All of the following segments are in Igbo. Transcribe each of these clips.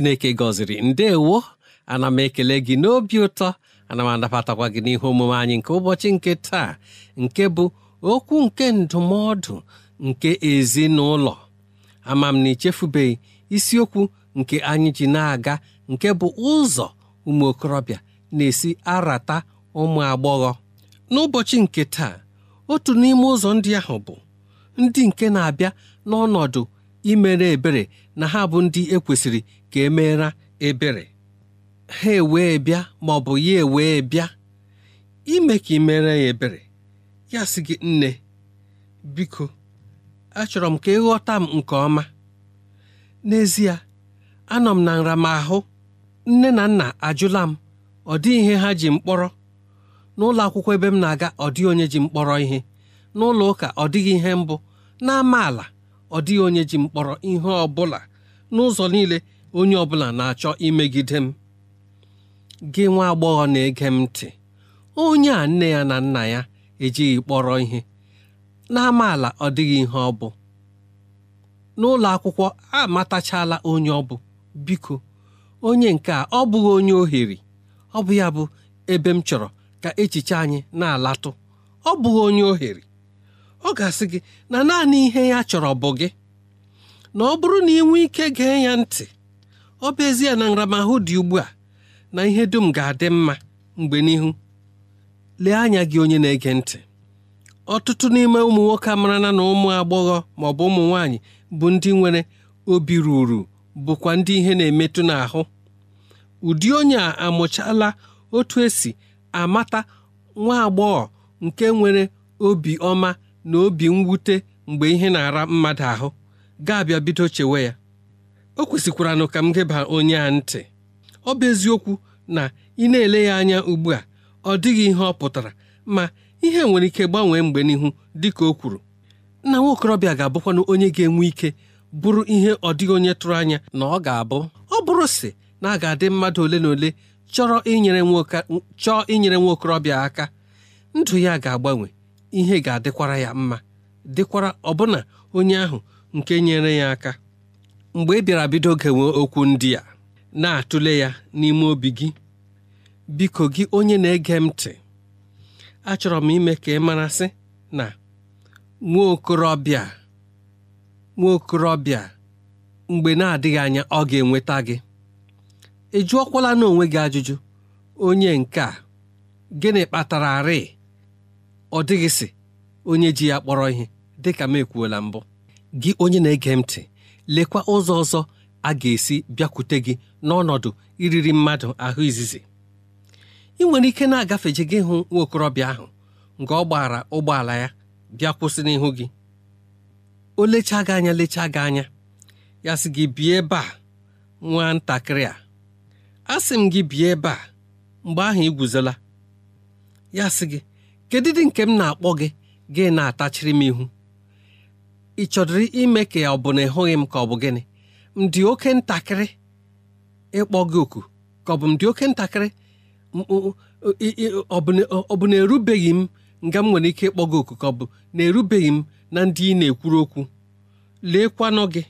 chineke gọziri ndewo ana m ekele gị n'obi ụtọ ana m anabatakwa gị n'ihe omume anyị nke ụbọchị nke taa nke bụ okwu nke ndụmọdụ nke ezinụlọ ama m na ichefubeghị isiokwu nke anyị ji na-aga nke bụ ụzọ ụmụ okorobịa na-esi arata ụmụ agbọghọ n'ụbọchị nke taa otu n'ime ụzọ ndị ahụ bụ ndị nke na-abịa n'ọnọdụ imere ebere na ha bụ ndị ekwesịrị ka e ebere ha ewee bịa ma ọ bụ ya ewee bịa ime ka ị mere ya ebere ya sị gị nne biko achọrọ m ka ịghọta m nke ọma n'ezie anọ m na nramahụ nne na nna ajụla m ọ dị ihe ha ji mkpọrọ n'ụlọ akwụkwọ ebe m na-aga ọ dịghị onye ji mkpọrọ ihe n'ụlọ ụka ọ dịghị ihe mbụ ala ọ dịghị onye ji mkpọrọ ihe ọ n'ụzọ niile onye ọ bụla na-achọ imegide m gị nwa agbọghọ na-ege m ntị onye a nne ya na nna ya ejighị kpọrọ ihe n'amaala ọ dịghị ihe ọ bụ n'ụlọ akwụkwọ amatachala onye ọ bụ biko onye nke a ọ bụghị onye ohere ọ bụ ya bụ ebe m chọrọ ka echiche anyị na-alatụ ọ bụghị onye ohere ọ ga-asị gị na naanị ihe ya chọrọ bụ gị na ọ bụrụ na ị nwee ike gee ya ntị ọ bụ ezie na nramahụ dị ugbu a na ihe dum ga-adị mma mgbe n'ihu lee anya gị onye na-ege ntị ọtụtụ n'ime ụmụ nwoke marana na ụmụ agbọghọ ma ọ bụ ụmụ nwanyị bụ ndị nwere obi ruru bụkwa ndị ihe na-emetụ n'ahụ ụdị onye a amụchala otu esi amata nwa agbọghọ nke nwere obi ọma na obi mwute mgbe ihe na-ara mmadụ ahụ ga-abịa bido chewe ya o kwesịkwara ka m geba onye a ntị ọ bụ eziokwu na ị na-ele ya anya ugbu a ọ dịghị ihe ọ pụtara ma ihe nwere ike gbanwee mgbe n'ihu dị ka o kwuru nna nwaokorobịa ga-abụkwanụ onye ga-enwe ike bụrụ ihe ọ dịghị onye tụrụ anya na ọ ga-abụ ọ bụrụ si na a ga-adị mmadụ ole na ole chọrọ inyere nwa okorobịa aka ndụ ya ga-agbanwe ihe ga-adịkwara ya mma dịkwara ọbụna onye ahụ nke nyere ya aka mgbe ị bịara bido gewe okwu ndị a na-atụle ya n'ime obi gị biko gị onye na-ege m ntị achọrọ m ime ka ị marasị na nwa okorobịa nwa okorobịa mgbe na-adịghị anya ọ ga-enweta gị ị jụọkwala n'onwe gị ajụjụ onye nke a gịnị kpatara arị ọ dịghịsị onye ji ya kpọrọ ihe dịka m ekwuola mbụ gị onye na-ege m ntị lekwa ụzọ ọzọ a ga-esi bịakwute gị n'ọnọdụ iriri mmadụ ahụ izizi ị nwere ike na-agafeje gị hụ Nwaokorobịa ahụ nke ọ gbara ụgbọala ya bịa kwụsị n'ihu gị o lechaa gị anya lechaa gị anya ya sị gị bie ebe a ntakịrị a asị m gị bie ebe a mgbe ahụ ị ya sị gị kedụ dị nke m na-akpọ gị gị na-atachiri m ihu ị chọdịrị ime ka ọ bụ na ịhụghị m ka ọ bụ gịnị m dị oke ntakịrị ịkpọ gị oku ka ọ bụ m dị oke ntakịrị ọ bụ na erubeghị m nga m nwere ike ịkpọ gị oku ka ọ bụ na erubeghị m na ndị ị na-ekwuru okwu leekwanụ gị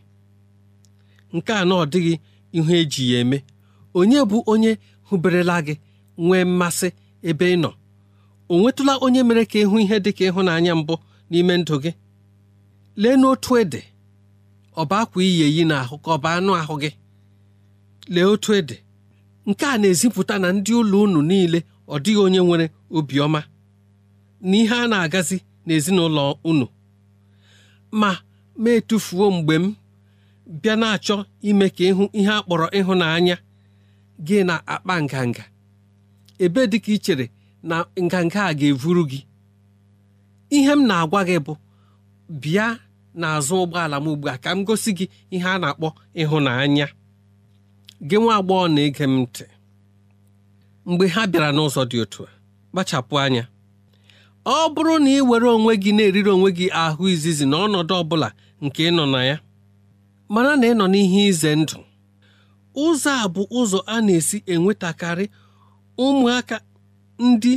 nke a na ọ dịghị ihu eji ya eme onye bụ onye hụberela gị nwee mmasị ebe ị nọ o nwetụla onye mere ka ịhụ ihe dị ka ịhụnanya mbụ n'ime ndụ gị lee n'otu ede ọba akwa iyi eyi ahụ ka bụ anụ ahụ gị lee otu ede nke a na-ezipụta na ndị ụlọ unu niile ọ dịghị onye nwere obiọma na ihe a na-agazi n'ezinụlọ unu ma ma etufuo mgbe m bịa na-achọ ime ka ịhụ ihe a kpọrọ ịhụnanya gị na-akpa nganga ebe dị ka ị na nganga a ga-evuru gị ihe m na-agwa gị bụ bịa n'azụ ụgbọala m ugbu a ka m gosi gị ihe a na-akpọ ịhụnanya gị nwa agbọghọ na-ege m ntị mgbe ha bịara n'ụzọ dị otu a kpachapụ anya ọ bụrụ na ị were onwe gị na-eriri onwe gị ahụ izizi na ọnọdụ ọ bụla nke ịnọ na ya mara na ị nọ n'ihe ize ndụ ụzọ a bụ ụzọ a na-esi enwetakarị ụmụaka ndị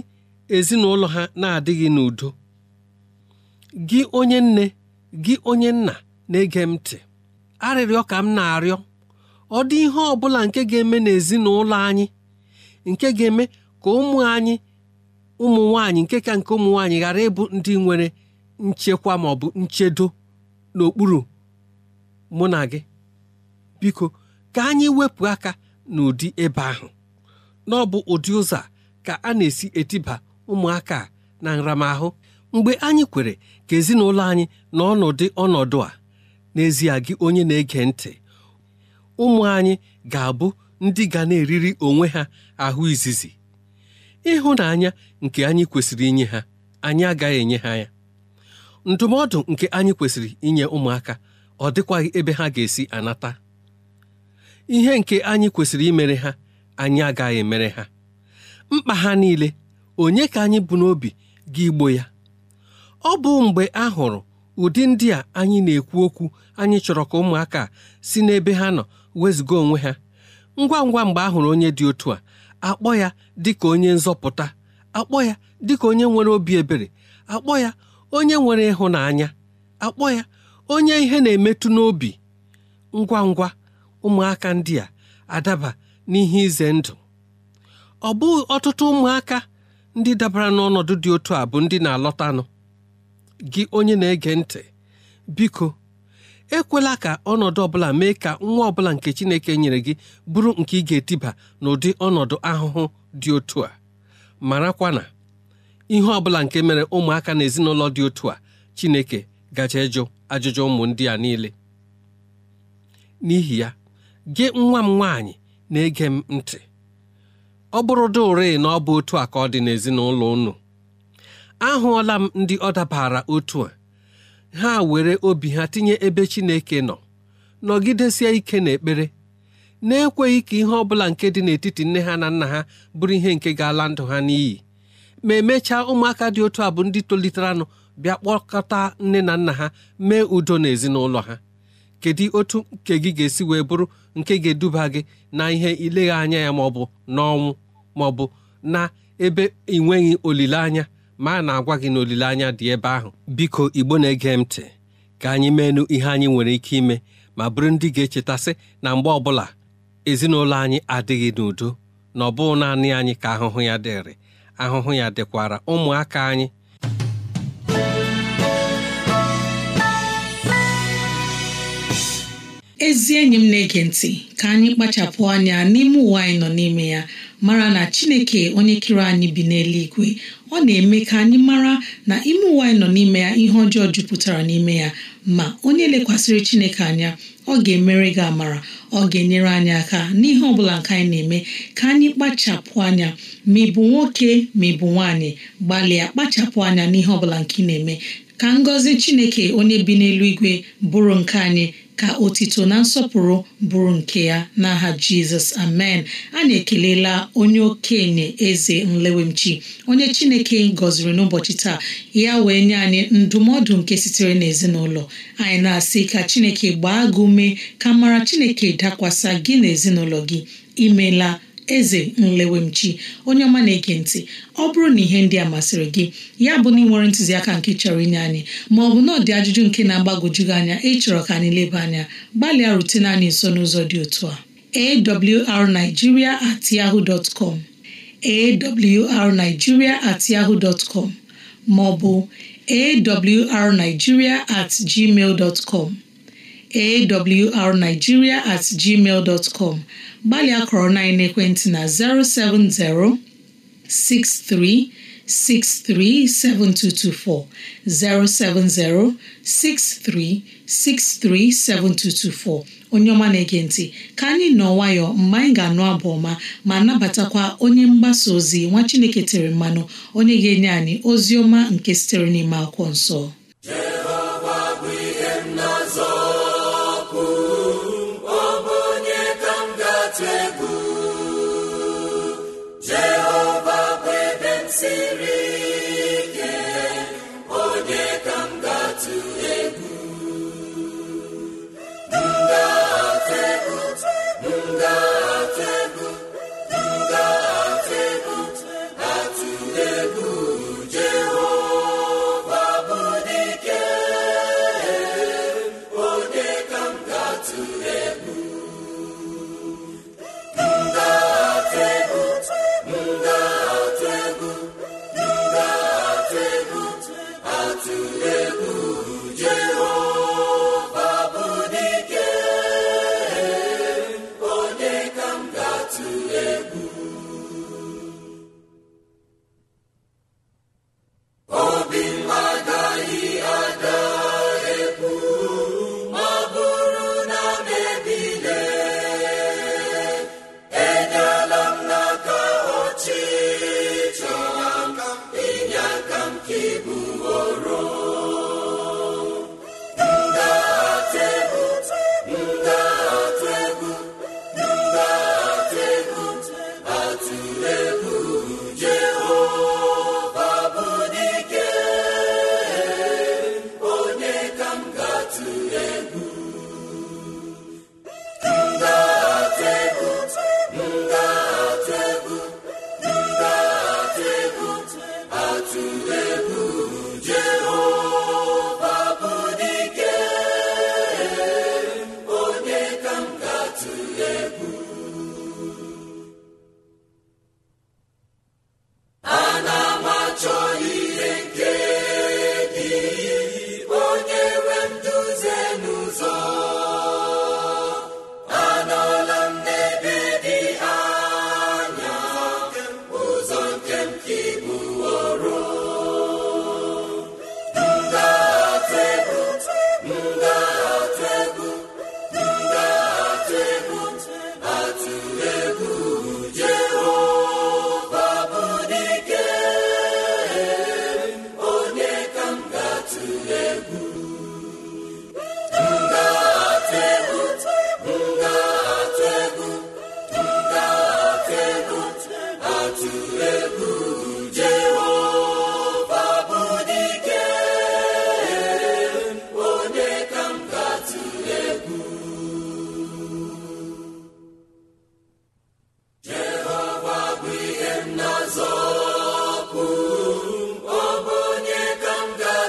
ezinụlọ ha na-adịghị n'udo gị onye nne gị onye nna na-ege m ntị arịrịọ ka m na-arịọ ọ dị ihe ọ bụla nke ga-eme n'ezinụlọ anyị nke ga-eme ka ụmụ anyị ụmụ nwanyị nke ka nke ụmụ nwaanyị ghara ịbụ ndị nwere nchekwa ma ọ bụ nchedo n'okpuru mụ na gị biko ka anyị wepụ aka n'ụdị ebe ahụ na ọ bụ ụdị ụzọ ka a na-esi etiba ụmụaka na nramahụ mgbe anyị kwere ka ezinụlọ anyị n'ọnọdụ ọnọdụ a n'ezie gị onye na-ege ntị ụmụ anyị ga-abụ ndị ga na-eriri onwe ha ahụ izizi ịhụnanya nke anyị kwesịrị inye ha anyị agaghị enye ha ya ndụmọdụ nke anyị kwesịrị inye ụmụaka ọ dịkwaghị ebe ha ga-esi anata ihe nke anyị kwesịrị imere ha anyị agaghị emere ha mkpa ha niile onye ka anyị bụ n'obi ga igbo ya ọ bụ mgbe a hụrụ ụdị ndị a anyị na-ekwu okwu anyị chọrọ ka ụmụaka si n'ebe ha nọ wezụga onwe ha ngwa ngwa mgbe a hụrụ onye dị otu a akpọ ya dị ka onye nzọpụta akpọ ya dị ka onye nwere obi ebere akpọ ya onye nwere ịhụnanya akpọ ya onye ihe na-emetụ n'obi ngwa ngwa ụmụaka ndị a adaba n'ihe ize ndụ ọ bụ ọtụtụ ụmụaka ndị dabara n'ọnọdụ dị otu a bụ ndị na-alọtanụ gị onye na-ege ntị biko ekwela ka ọnọdụ ọbụla mee ka nwa ọbụla nke Chineke nyere gị bụrụ nke ị ga-etiba n'ụdị ọnọdụ ahụhụ dị otu a marakwa na ihe ọbụla nke mere ụmụaka na ezinụlọ dị otu a Chineke gaje ịjụ ajụjụ ụmụ ndị a niile n'ihi ya gị nwa m nwaanyị na-ege m ntị ọ bụrụ dị ụre na ọ bụ otu a ka ọ dị n'ezinụlọ unu ahụọla m ndị ọ dabara otu a ha were obi ha tinye ebe Chineke nọ nọgidesie ike n'ekpere na-ekweghị ka ihe ọ bụla nke dị n'etiti nne ha na nna ha bụrụ ihe nke ga-ala ndụ ha n'iyi ma emechaa ụmụaka dị otu a bụ ndị toliteranụ bịa kpọkọta nne na nna ha mee udo n'ezinụlọ ha kedu otu nke gị ga-esi wee bụrụ nke ga-eduba gị na ihe ilegha anya ya maọbụ n'ọnwụ maọbụ na ebe ị nweghị olileanya ma na-agwa gị na n'olileanya dị ebe ahụ biko igbo na-ege m ntị ka anyị meenụ ihe anyị nwere ike ime ma bụrụ ndị ga-echetasị na mgbe ọbụla ezinụlọ anyị adịghị n'udo na ọ bụghị naanị anyị ka ahụhụ ya dịrị ahụhụ ya dịkwara ụmụaka anyị ezi enyi m na-ege ntị ka anyị kpachapụ anya n'ime ụwa anyị nọ n'ime ya mara na chineke onye kere anyị bi n'eluigwe ọ na-eme ka anyị mara na ime ụwa anyị nọ n'ime ya ihe ọjọọ jupụtara n'ime ya ma onye lekwasịrị chineke anya ọ ga-emere gị amara ọ ga-enyere anyị aka n'ihe ọbụla nke anyị na-eme ka anyị kpachapụ anya ma ị bụ nwoke ma ị bụ nwaanyị gbalịa kpachapụ anya n'ihe ọbụla nke ị na-eme ka ngọzi chineke onye bi n'eluigwe bụrụ nke anyị ka otito na nsọpụrụ bụrụ nke ya n'aha jizọs amen a na ekelela onye okenye eze nlewemchi onye chineke gọziri n'ụbọchị taa ya wee nye anyị ndụmọdụ nke sitere n'ezinụlọ anyị na-asị ka chineke gbaa gị ume ka mara chineke dakwasa gị n'ezinụlọ gị imela eze nlewemchi onye ọma na-ege ntị ọ bụrụ na ihe ndị a masịrị gị ya bụ na ị nwere ntụziaka nke chọrọ inye anyị ma ọ bụ na ọ dị ajụjụ nke na-agbagwojughị anya ịchọrọ ka anyị leba anya gbalịa rutene anyị nso n'ụzọ dị otu a awrnigeria at yahoo dot com awrnigeria at yahoo dot com ma awrnigeria at gmail dot com awrnigeria at gmail dot com gbalịa kọrọ na ekwentị na 070 7224 onye ọma na-ege ntị ka anyị nọ nwayọọ mgbe anyị ga-anụ abụ ọma ma nabatakwa onye mgbasa ozi nwa Chineke tere mmanụ onye ga-enye anyị ozi ọma nke sitere n'ime akwụkwọ nsọ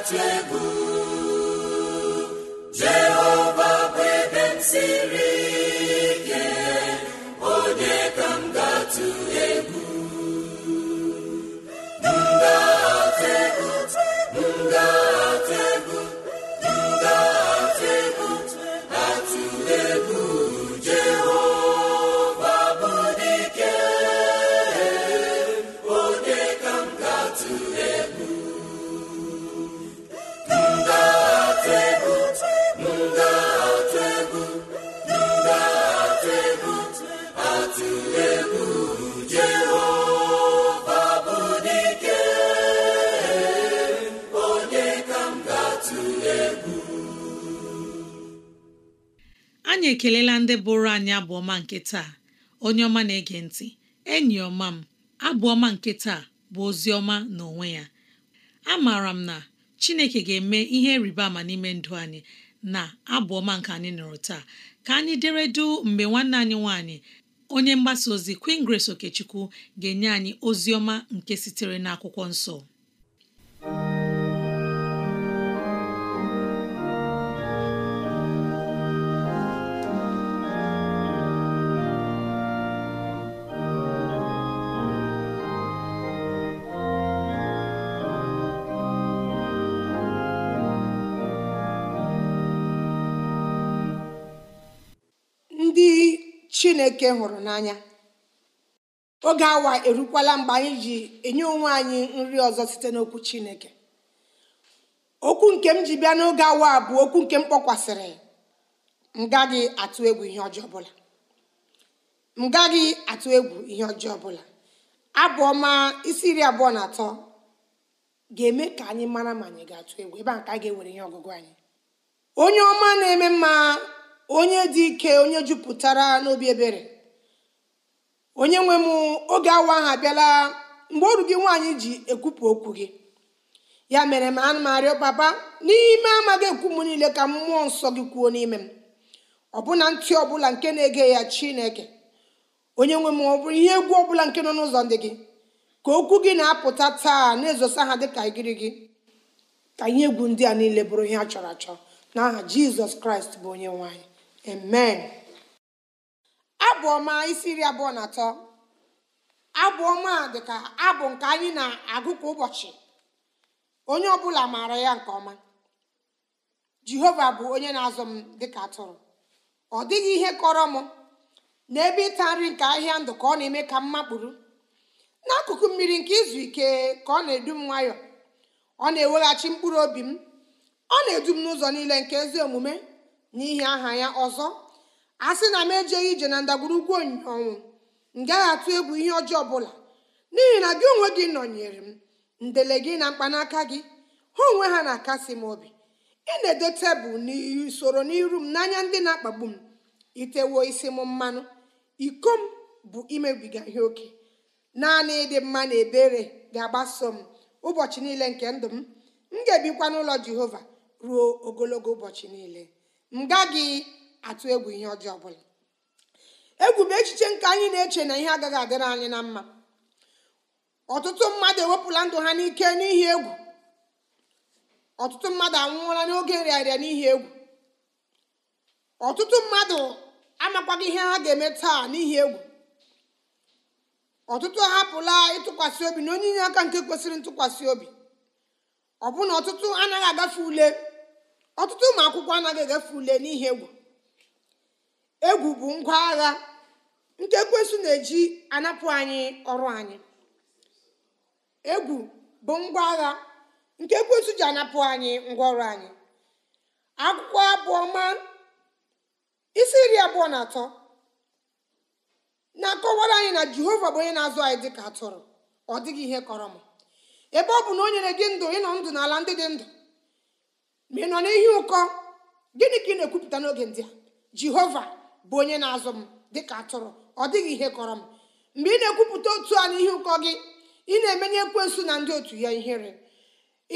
atụ egwu ndị bụrụ anyị abụọma nke taa onye ọma na-ege ntị enyi ọma m abụọma nke taa bụ ozi ọma n'onwe ya A maara m na Chineke ga-eme ihe rịba ama n'ime ndụ anyị na abụọma nke anyị nọrọ taa ka anyị dere du mgbe nwanne anyị nwanyị onye mgbasa ozi Queen Grace Okechukwu ga-enye anyị ozi ọma nke sitere n'akwụkwọ nsọ chineke hụrụ n'anya oge awa erukwala mgbe anyị ji enye onwe anyị nri ọzọ site n'okwu chineke okwu nke m ji bịa n'oge awa bụ okwu nke m kpọkwasịrị m gaghị atụ egwu ihe ọjọọ ọbụla m gaghị atụ egwu ihe ọjọọ ọbụla abụ isi iri abụọ na atọ ga-eme ka anyị mara ma anyị ga-atụ egwu ebe a ka a ga-ewere ihe ọgụgụ anyị onye ọma na-eme mma onye dị ike onye jupụtara n'obi ebere onye nwe m oge awa ahụ abịala mgbe ọrụ gị nwaanyị ji ekwupụ okwu gị ya mere m ana m arịọ baba n'ime amaghị ekwu m niile ka mmụọ nsọ gị kwuo n'ime m ọbụna ntị ọbụla nke na-ege ya chineke onye nwe m ọ bụrụ ihe egwu ọbụla nke nọ n'ụzọ ndị gị ka okwu gị na-apụta taa na-ezosa ha dịka igiri gị ka ihe egwu ndị a niile bụrụ ihe a chọrọ achọ n'aha jizọs kraịst bụ onye nwaanyị amen abụ ọma isi iri abụọ na atọ abụ ọma dịka abụ nke anyị na-agụ kwa ụbọchị onye ọbụla maara ya nke ọma jehova bụ onye na-azụ m dịka atụrụ ọ dịghị ihe kọrọ m n'ebe ịta nri nke ahịa ndụ ka ọ na-eme ka m makpụrụ n'akụkụ mmiri nke izu ike ka ọ na-edu m nwayọọ ọ na-eweghachi mkpụrụ obi m ọ na-edu m n'ụzọ niile nke ezi omume n'ihi aha ya ọzọ a sị na m ejeghị ije na ndagwurugwu onyinye ọnwụ m gaghị atụ egwu ihe ọjọọ ọbụla n'ihi na gị onwe gị nọnyere m ndele gị na mkpanaka gị ha onwe ha na-akasi m obi ị na ede tebụl n'usoro n'iru m n'anya ndị na-akpagbu m itewo isi m mmanụ iko m bụ imebiga ihe oke naanị ịdị mma na ebere ga-agbaso m ụbọchị niile nke ndụ m m ga-ebikwa n'ụlọ jehova ruo ogologo ụbọchị niile m atụ egwu ihe ọjọọ ọbụla egwu bụ echiche nke anyị na-eche na ihe agaghị adịrị anyị na mma ọtụtụ mmadụ ewepụla ndụ ha n'ike n'ihi egwu ọtụtụ mmadụ anwụọla n'oge nrịarịa n'ihi egwu ọtụtụ mmadụ amakwaghị ihe ha ga-eme taa n'ihi egwu ọtụtụ ahapụla ịtụkwasị obi na onye inye aka nke kwesịrị ntụkwasị obi ọbụna ọtụtụ anaghị agafe ule ọtụtụ ụmụ akwụkwọ anaghị egafe ule n'ihe egwu egwu bụ ngwa agha nke ekwensu na-eji anapụ anyị ọrụ anyị egwu bụ ngwa ji anapụ anyị ngwa ọrụ anyị akwụkwọ isi iri abụọ na atọ na-akọwara anyị na jehova bụ onye na-azụ anyị dịka atụrụ ọ dịghị ihe kọrọ m ebe ọ bụ na o nyere gị ndụ ịnọ ndụ n'ala ndị dị ndụ ma ị nọ n'ihi ụkọ gịnị ka ị na-ekwupụta n'oge ndị a jehova bụ onye na-azụ m dịka atụrụ ọ dịghị ihe kọrọ m mgbe ị na-ekwupụta otu a n'ihi ụkọ gị ị na-emenye ekwensu na ndị otu ya ihere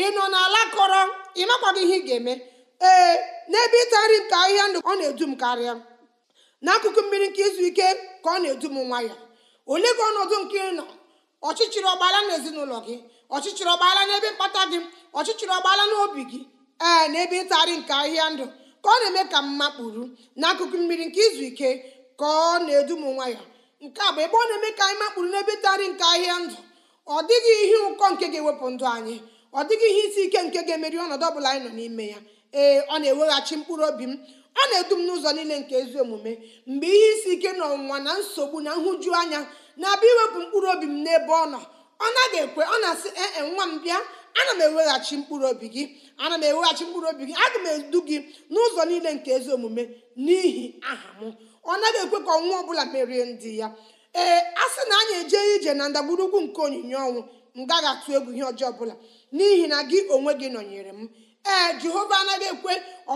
ị nọ n'ala kọrọ ị makwaghị ihe ị ga-eme ee n'ebe ịta nri ahịhịa ndụ ọ na-edu m karịa n'akụkụ mmiri nke izu ike ka ọ na-edu m nwayọ ole gị ọnọdụ nke ị nọ ọchịchịrị ọgbaala na ezinụlọ gị ọchịchịrị ọgbaala n'ebe mkpata gị ọchịchịrị ọgbaala n'obi gị ee na ebe nke ahịa ndụ ka ọ na-eme ka mma kpuru n'akụkụ mmiri nke izu ike ka ọ na-edu m nwayọ nke a bụ ebe ọ na-eme ka anyị makpuru n'ebe ịtarị nke ahịa ndụ ọ dịghị ihe ụkọ nke ga-ewepụ ndụ anyị ọ dịghị ihe isi ike nke ga-emeri ọnọdụ ọ bụla anyị nọ n'ime ya ee ọ na-eweghachi mkpụrụ obi m ọ na-edu m n'ụzọ niile nke ezi omume mgbe ihe isi ike na ọnwụnwa na nsogbu na nhụju anya na-abịa iwepụ mkpụrụ obi m n'ebe ọ nọ ọ naghị ekwe ọ na-asị ee e, nwa m bịa ana m eweghachi mkpụrụ obi gị ana m eweghachi mkpụrụ obi gị aga m edu gị n'ụzọ niile nke ezi omume n'ihi aha m ọ naghị ekwe ka ọnwa ọbụla merie ndị ya ee a sị na anyị eje ije na ndagburugwu nke onyinye ọnwụ m gaghị atụ egwu ihe ọjọọ ọbụla n'ihi na gị onwe gị nọnyere m ee jehova anaghị ekwe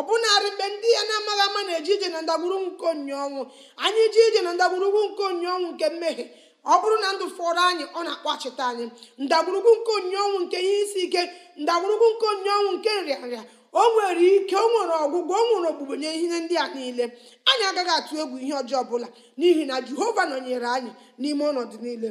bụnarị mgbe ndị ya na-amaghị ama na-eje ije na ndagburugwu nke onyinye ọnwụ anyị ije ije na ndagburugwu nke onyinye ọnwụ nke mmehie ọ bụrụ na ndụ fọrọ anyị ọ na-akpọchite anyị ndagwurugwu nke onye ọnwụ nke ihe isi ike ndagwurugwu nke onye ọnwụ nke nrịanrịa o nwere ike o nwere ọgwụgwọ o nwere ogbugbo nye ihe ndị a niile anyị agaghị atụ egwu ihe ọjọọ ọbụla n'ihi na jehova nọnyere anyị n'ime ọnọdụ niile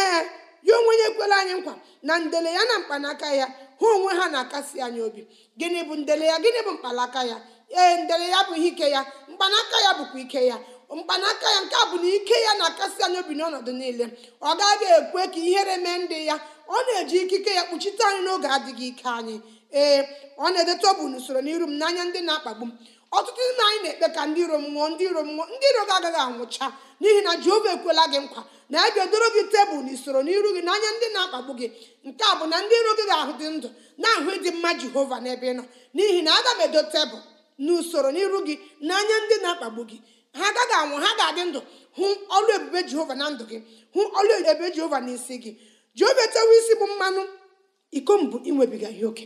ee ya onwe onye ekwela anyị nkwa na ndele ya na mkpanaka ya ha onwe ha na-akasi anyị obi gịnị bụ ndele ya gịnị bụ mkpanaka ya ee ndele ya bụ ihe ike ya mkpanaka ya bụkwa ike ya mkpanaka ya nke a bụ na ike ya na-akasị anyị obi n'ọnọdụ niile ọ gaghị ekwe ka ihere mee ndị ya ọ na-eji ikike ya kpuchite anyị n'oge adịghị ike anyị ee ọ na-edeta ọbụ n'usoro n'iru m n'anya ndị na-akpagbu m ọtụtụ ndị anyị na-ekpe ka ndị iro m nwụọ ndị iro mmụọ nwụọ ndị iro gị agaghị anwụcha n'ihi na jehova ekwela gị nkwa na ya ga-edoro gị tebụl usoro n'iru gị n'anya ndị na-akpagbu gị nke a bụ na ndị iro gị ga-ahụ dị ndụ na-ahụ ịdị mma jehova n'ebe ị nọ n'ihi na aga m edo tebụl n'usoro n'iru gị n'anya ndị na-akpagbu gị ha agaghị anwụ ha ga-adị ndụ hụ ọlụ ebube jehova na ndụ gị hụ ọlụ ebube jehova n'isi gị jehova etewe isi bụ mmanụ iko mbụ inwebiga ihe oke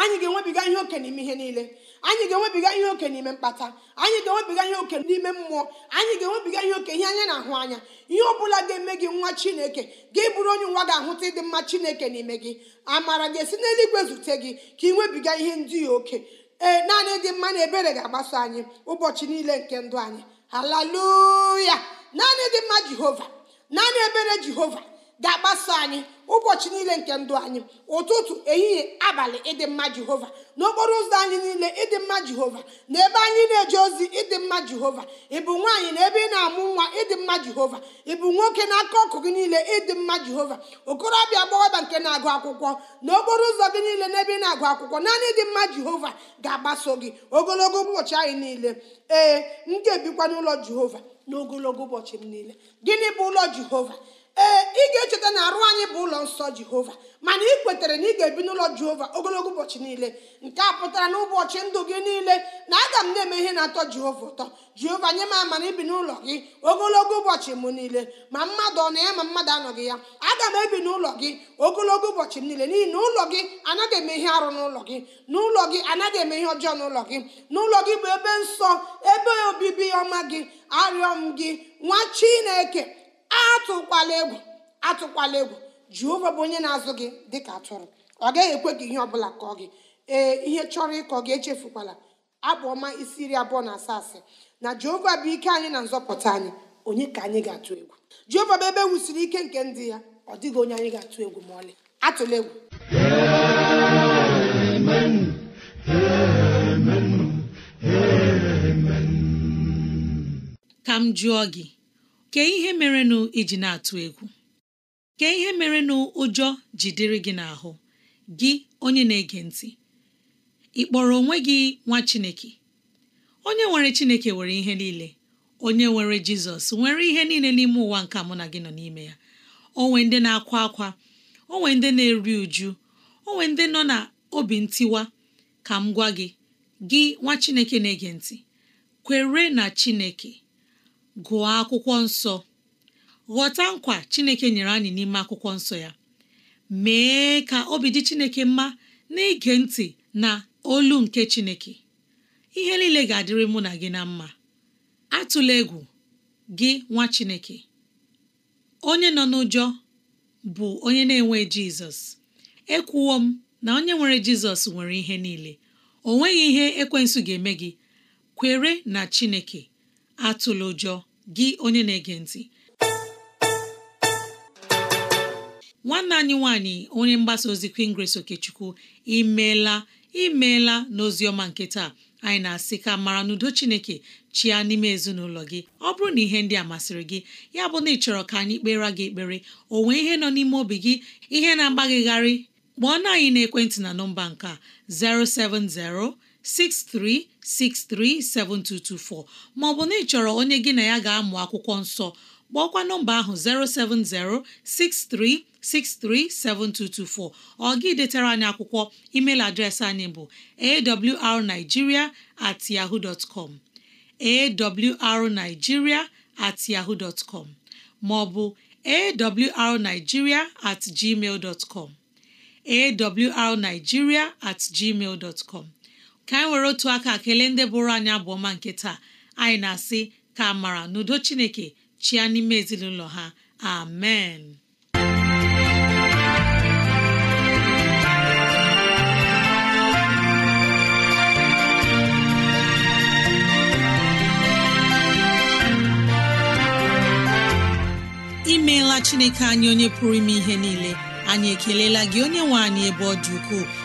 anyị ga-enwebiga ihe oke n'ime ihe niile anyị ga-enwebiga ihe oke n'ime mkpata anyị ga-enwebiga ihe oke n'ime mmụọ anyị ga-enwebiga ihe oke ihe anya na-ahụ anya ihe ọ bụla ga-eme gị nwa chineke gị bụrụ onye nwa ga-ahụta ịdị mma chineke n'ime gị amara ga-esi n'eluigwe zute gị ka ị nwebiga ihe ndị oke ee naanị dị mma na ebere ga-agbaso anyị ụbọchị niile nke ndụ anyị haleluya naanị dị mma jehova naanị ebere jehova ga-agbaso anyị ụbọchị niile nke ndụ anyị ụtụtụ ehihie abalị ịdị mma jehova n'okporo ụzọ anyị niile ịdị mma jehova na ebe anyị na-eje ozi ịdị mma jehova ịbụ nwaanyị na ebe ị na-amụ nwa ịdị mma jehova ịbụ nwoke n'aka ọkụ gị niile ịdị mma jehova okorobịa agbọghọbịa nke na-agụ akwụkwọ n'okporo ụzọ gị niile na ebe ị na-agụ akwụkwọ naanị ịdị mma jehova ga-agbaso gị ogologo ụbọchị anyị niile ee m ga-ebikwa n'ụlọ jehova n'ogologo ụbọchị m niile gịnị bụ ụlọ jehova ee ị ga-echeta na arụ anyị bụ ụlọ nsọ jehova mana ị kwetere na ị ga-ebi n'ụlọ jehova ogologo ụbọchị niile nke a pụtara n'ụbọchị ndụ gị niile na aga m na-eme ihe na-atọ jehova ụtọ jehova nye m na ibi n'ụlọ gị ogologo ụbọchị m niile ma mmadụ ọ na ya ma mmadụ anọghị ya aga m ebi n'ụlọ gị ogologo ụbọchị m niile n'ihi na ụlọ gị anaghị eme ihe arụ n'ụlọ gị n'ụlọ gị anaghị eme ihe ọjọọ n'ụlọ gị n'ụlọ gị bụ ebe nsọ ebe obibi ọma gị arịọ m gị nwa chineke atụkwala egwu atụkwala egwu jehova bụ onye na-azụ gị dịka atụrụ ọ gaghị ekwe gị ihe ọbụla kọọ gị ee ihe chọrọ ịkọ gị echefukwala abụ ọma isi iri abụọ na asaa asị na jehova bụ ike anyị na nzọpụta anyị onye ka anyị ga-atụ egwu jehova bụ ebe e wusiri ike nke ndị ya ọ dịghị onye anyị ga-atụ egwu ma ọlị atụla egwu ka m jụọ gị kee ihe merenụ iji na-atụ egwu kee ihe merenụ ụjọ jidere gị n'ahụ gị onye na-ege ntị ị kpọrọ onwe gị nwa Chineke onye nwere Chineke nwere ihe niile onye nwere Jizọs nwere ihe niile n'ime ụwa nke mụ na gị nọ n'ime ya onwe ndị na-akwa akwa onwe ndị na-eri uju onwe ndị nọ na obi ntiwa ka m gwa gị gị nwa Chineke na-ege ntị kwere na Chineke gụọ akwụkwọ nsọ ghọta nkwa Chineke nyere anyị n'ime akwụkwọ nsọ ya mee ka obi dị Chineke mma n'ige ntị na olu nke Chineke ihe niile ga-adịrị mụ na gị na mma atụla egwu gị nwa Chineke onye nọ n'ụjọ bụ onye na-enwe Jizọs ekwuwo m na onye nwere Jizọs nwere ihe niile o nweghị ihe ekwensu ga-eme gị kwere na Chineke atụla ụjọ gị onye na-ege ntị nwanne anyị nwanyị onye mgbasa ozi Queen Okechukwu imeela imeela n'oziọma nke taa anyị na-asị ka mara n'udo Chineke chia n'ime ezinụlọ gị ọ bụrụ na ihe ndị a masịrị gị ya bụ na ị chọrọ ka anyị kpere gị ekpere o ihe nọ n'ime obi gị ihe na-agbagịgharị kpọọ na anyị na ekwentị na nọmba nke a 070 Ma ọ bụ na ị chọrọ onye gị na ya ga-amụ akwụkwọ nsọ kpọọkwa nọmba ahụ 7224. ọ gị detara anyị akwụkwọ email adreesị anyị bụ awrnigeria at ma ọ bụ at maọbụ at gmail ka anyị e were otu aka kelee ndị bụrụ anyị abụọma nke taa anyị na-asị ka a mara n'udo chineke chia n'ime ezinụlọ ha amen imeela chineke anyị onye pụrụ ime ihe niile anyị ekelela gị onye nwe anyị ebe ọ dị ukwuu